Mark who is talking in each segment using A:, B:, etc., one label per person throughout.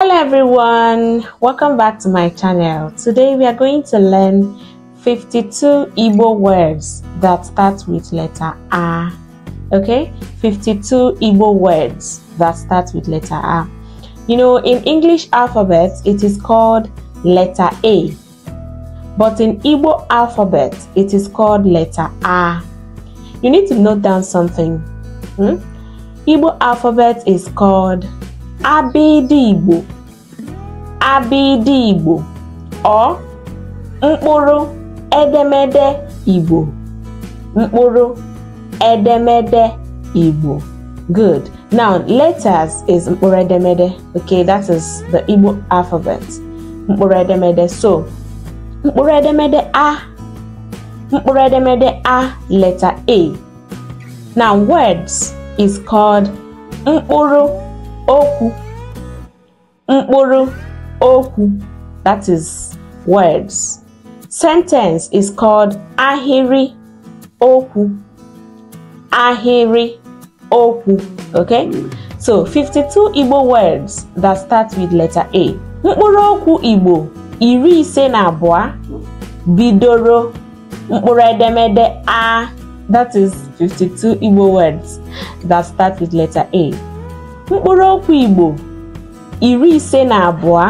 A: hello everyone welcome back to my channel today we are going to learn 52 Igbo words that start with letter A okay 52 Igbo words that start with letter A you know in English alphabet it is called letter A but in Igbo alphabet it is called letter A you need to note down something hmm? Igbo alphabet is called Igbo Abịdị Igbo ọ mkpụrụ edemede Igbo mkpụrụ edemede Igbo good now letters is mkpụrụ edemede okay that is the Igbo alphabet mkpụrụ edemede so mkpụrụ edemede a mkpụrụ edemede a letter a now words is called mkpụrụ okwu mkpụrụ okwu that is words sentence is called ahịrị okwu ahịrị okwu okay so 52 Igbo words that start with letter A mkpụrụ okwu Igbo iri ise na abụọ bidoro mkpụrụ edemede a that is 52 Igbo words that start with letter A mkpụrụ okwu Igbo iri ise na abụọ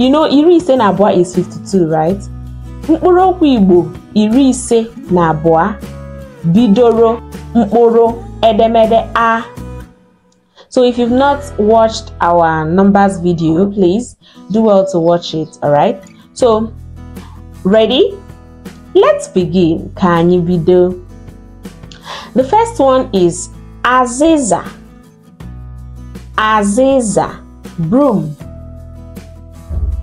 A: you know iri ise na abụọ is 52 right mkpụrụ okwu Igbo iri ise na abụọ bidoro mkpụrụ edemede a So if you've not watched our numbers video, please do well to watch it, alright? So, ready? Let's begin. Can you be The first one is Aziza. Aziza, broom.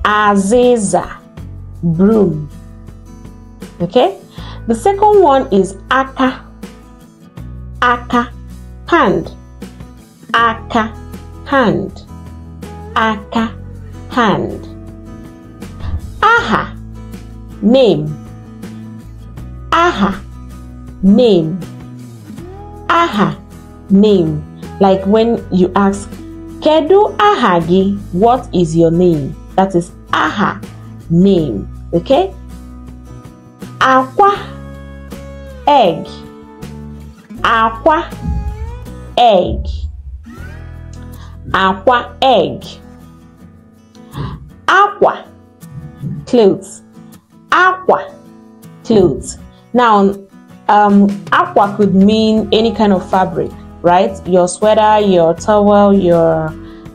A: Aziza, broom. Okay? The second one is aka. Aka, hand. Aka, hand. Aka, hand. Aha, name. Aha, name. Aha, name. Like when you ask Kedu aha gi? What is your name? That is aha, name. Okay? Aqua, egg. Aqua, egg. Aqua, egg. Aqua, clothes. Aqua, clothes. Now, um, aqua could mean any kind of fabric right? Your sweater, your towel, your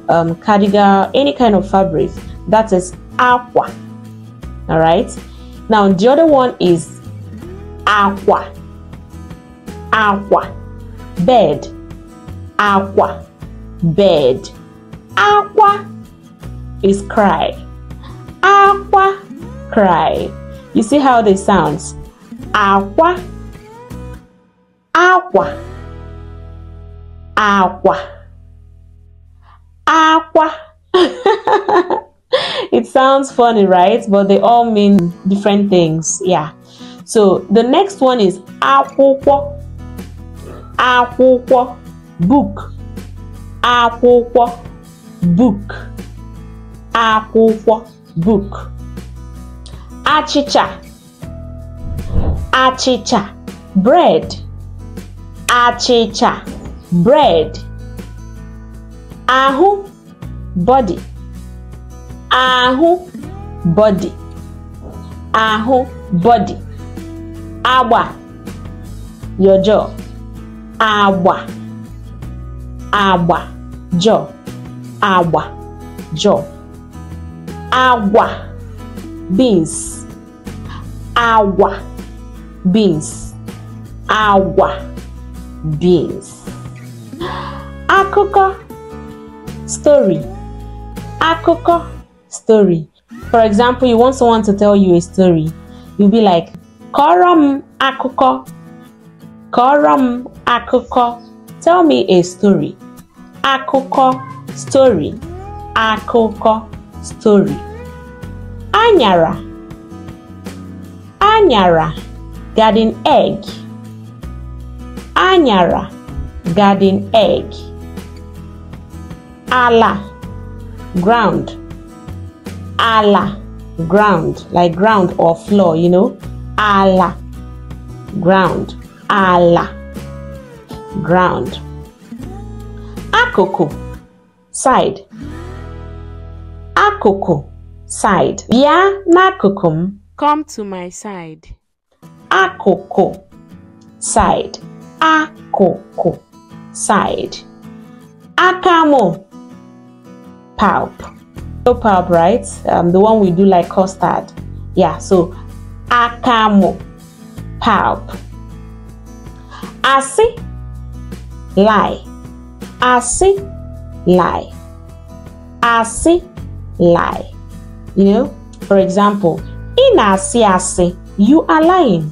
A: um, cardigan, any kind of fabric. That is aqua. All right. Now the other one is aqua. Aqua. Bed. Aqua. Bed. Aqua is cry. Aqua. Cry. You see how they sounds? Aqua. Aqua. Aqua, aqua. it sounds funny, right? But they all mean different things. Yeah. So the next one is akwụkwọ. Akwụkwọ. Book. Akwụkwọ. Book. Akwụkwọ. Book. Achịcha. Achịcha. Bread. Achịcha. bread Ahu, body Ahu, body Ahu, body agba your jaw agba agba jaw agba jaw agwa beans agwa beans agwa beans akụkọ story akụkọ story for example you want someone to tell you a story you'll be like kọrọ m akụkọ kọrọ m akụkọ tell me a story akụkọ story akụkọ story anyara anyara garden egg anyara garden egg. Ala, ground. Ala, ground, like ground or floor, you know. Ala, ground. Ala, ground. Akoko, side. Akoko, side. Bia nakukum. Come to my side. Akoko, side. Akoko side. Akamo pulp. No pulp, right? Um, the one we do like custard. Yeah, so akamo pulp. Asi lie. Asi lie. Asi lie. You know, for example, in asi asi, you are lying.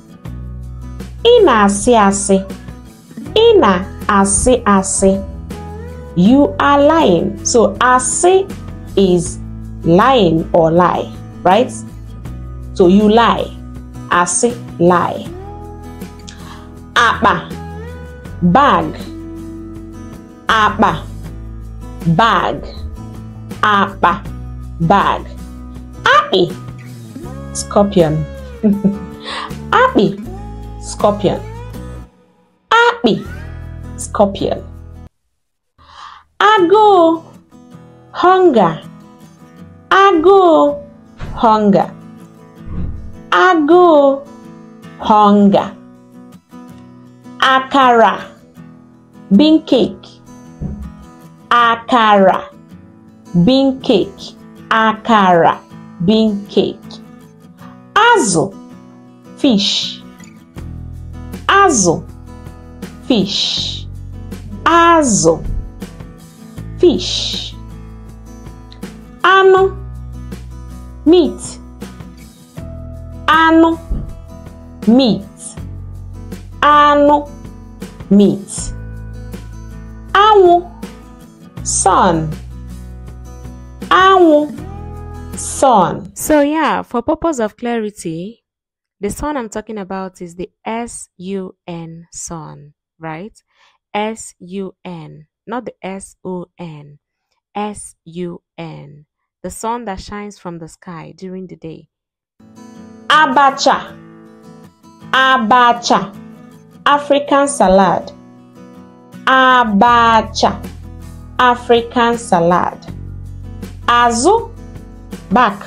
A: In asi asi. In a asị asị you are lying so asị is lying or lie right so you lie asị lie Abba bag Abba bag Abba bag akpị scorpion akpị scorpion akpị Scorpion. Agụụ hunger agụụ hunger agụụ hunger akara bean cake akara bean cake akara bean cake Azo, fish Azo, fish Azo fish ano meat ano meat ano meat anwụ sun anwụ sun so yeah for purpose of clarity the sun i'm talking about is the s-u-n sun right S U N, not the S O N, S U N, the sun that shines from the sky during the day. Abacha, Abacha, African salad. Abacha, African salad. Azụ, back.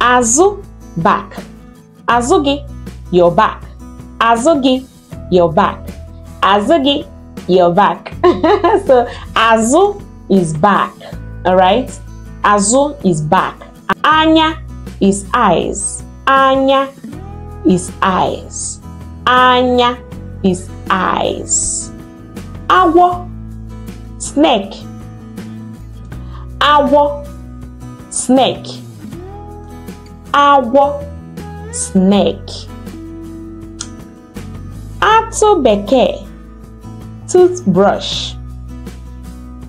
A: Azụ, back. Azụ your back. Azụ your back. azụ gị your back so Azu is back All right, Azu is back anya is eyes anya is eyes anya is eyes agwọ snake agwọ snake agwọ snake atụ bekee toothbrush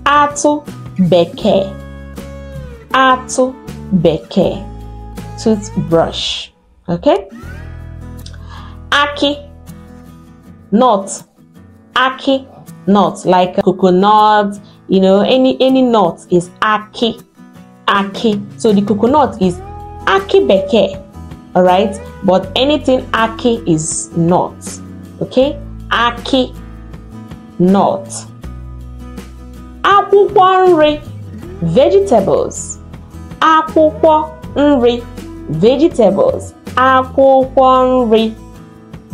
A: atụ bekee atụ beke, toothbrush okay aki nut aki nut like coconut you know any any nut is aki aki so the coconut is aki beke all right but anything aki is not okay aki nut akwụkwọ nri vegetables akwụkwọ nri vegetables akwụkwọ nri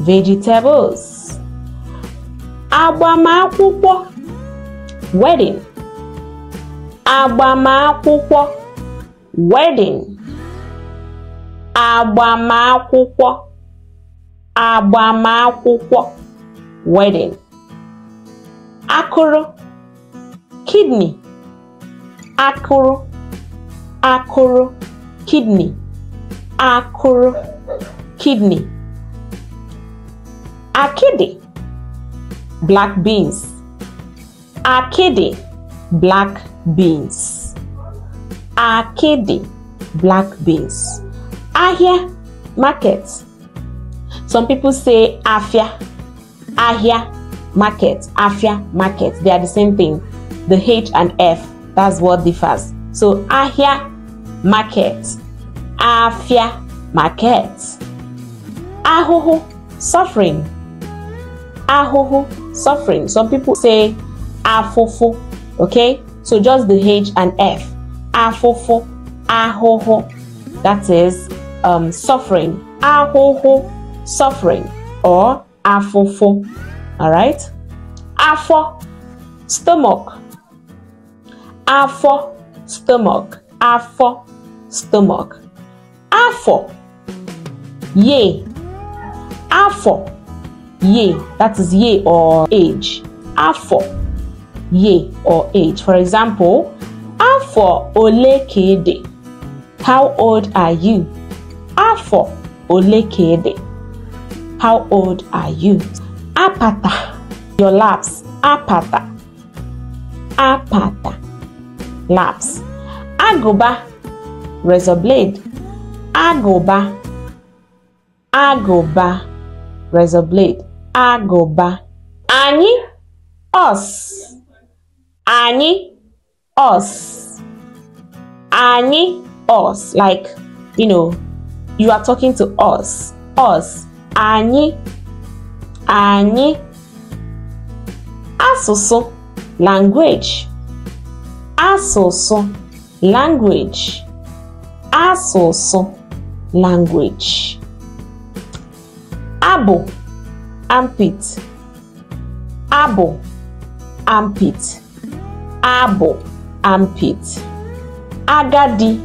A: vegetables agbamakwụkwọ wedding agbamakwụkwọ wedding agbamakwụkwọ agbamakwụkwọ wedding akụrụ kidney akụrụ akụrụ kidney akụrụ kidney akidi black beans akidi black beans akidi black beans ahịa market some people say afia ahịa market, Afia market, they are the same thing. The H and F, that's what differs. So Afia, market, Afia market. Ahoho, suffering. Ahoho, suffering. Some people say afufu, okay? So just the H and F. Afufu, ahoho. That is um, suffering. Ahoho, suffering or afufu. All right. Afọ, stomach. Afọ, stomach. Afọ, stomach. Afọ, ye. Afọ, ye. That is ye or age. Afọ, ye or age. For example, afọ ole ka How old are you? Afọ ole ka How old are you? apata. Your laps. Apata. Apata. Laps. Agoba. Razor blade. Agoba. Agoba. Razor blade. Agoba. Anyị. Us. Anyị. Us. Anyị. Us. Like, you know, you are talking to us. Us. Anyị. anyị asụsụ language asụsụ language asụsụ language abụ armpit abụ armpit abụ armpit agadi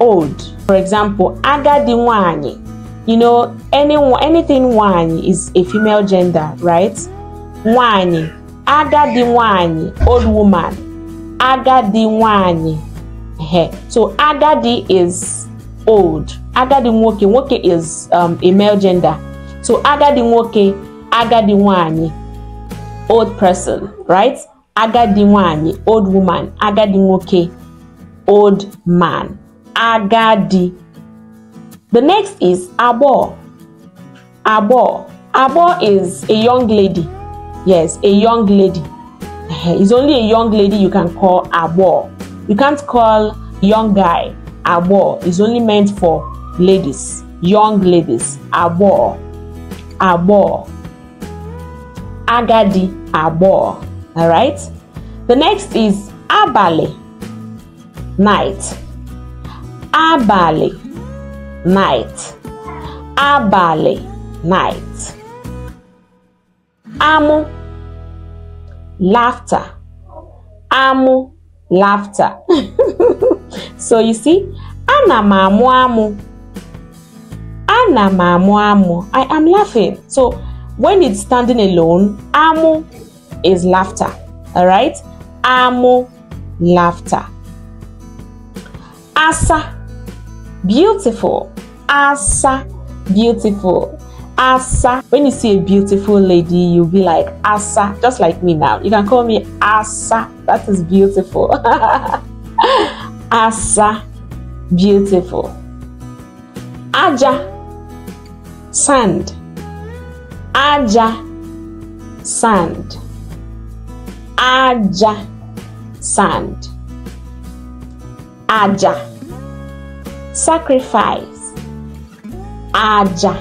A: old for example agadi nwanyị you know, any, anything one is a female gender, right? One, agadi one, old woman, agadi one. So agadi is old, agadi woke, woke is um, a male gender. So agadi woke, agadi one, old person, right? Agadi one, old woman, agadi woke, old man, agadi The next is abo. Abo. Abo is a young lady. Yes, a young lady. It's only a young lady you can call abo. You can't call young guy abo. It's only meant for ladies, young ladies. Abo. Abo. Agadi abo. All right. The next is abale. Night. Abale. night abalị night amụ laughter amụ laughter so you see anamamu, m amụ amụ amụ i am laughing so when it's standing alone amụ is laughter all right amụ laughter asa beautiful Asa, beautiful. Asa. When you see a beautiful lady, you'll be like Asa, just like me now. You can call me Asa. That is beautiful. Asa, beautiful. Aja, sand. Aja, sand. Aja, sand. Aja, sacrifice. Aja.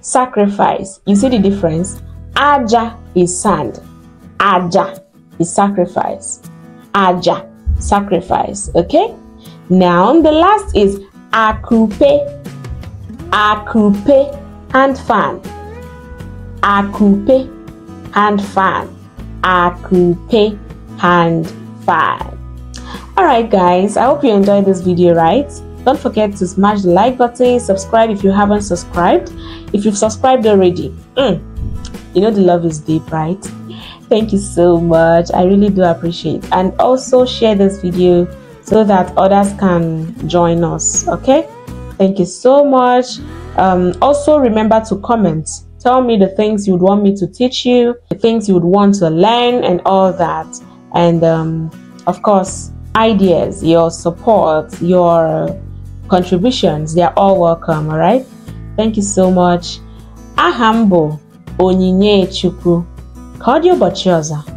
A: Sacrifice. You see the difference? Aja is sand. Aja is sacrifice. Aja, sacrifice. Okay? Now, the last is akupe. Akupe and fan. Akupe and fan. Akupe and fan. Alright guys, I hope you enjoyed this video, right? Don't forget to smash the like button, subscribe if you haven't subscribed. If you've subscribed already, mm, you know the love is deep, right? Thank you so much. I really do appreciate. And also share this video so that others can join us. Okay? Thank you so much. Um, also remember to comment. Tell me the things you would want me to teach you, the things you would want to learn and all that. And um, of course, ideas, your support, your contributions. They are all welcome, all right? Thank you so much. Ahambo m bụ Onyinye Chukwu. Ka ọ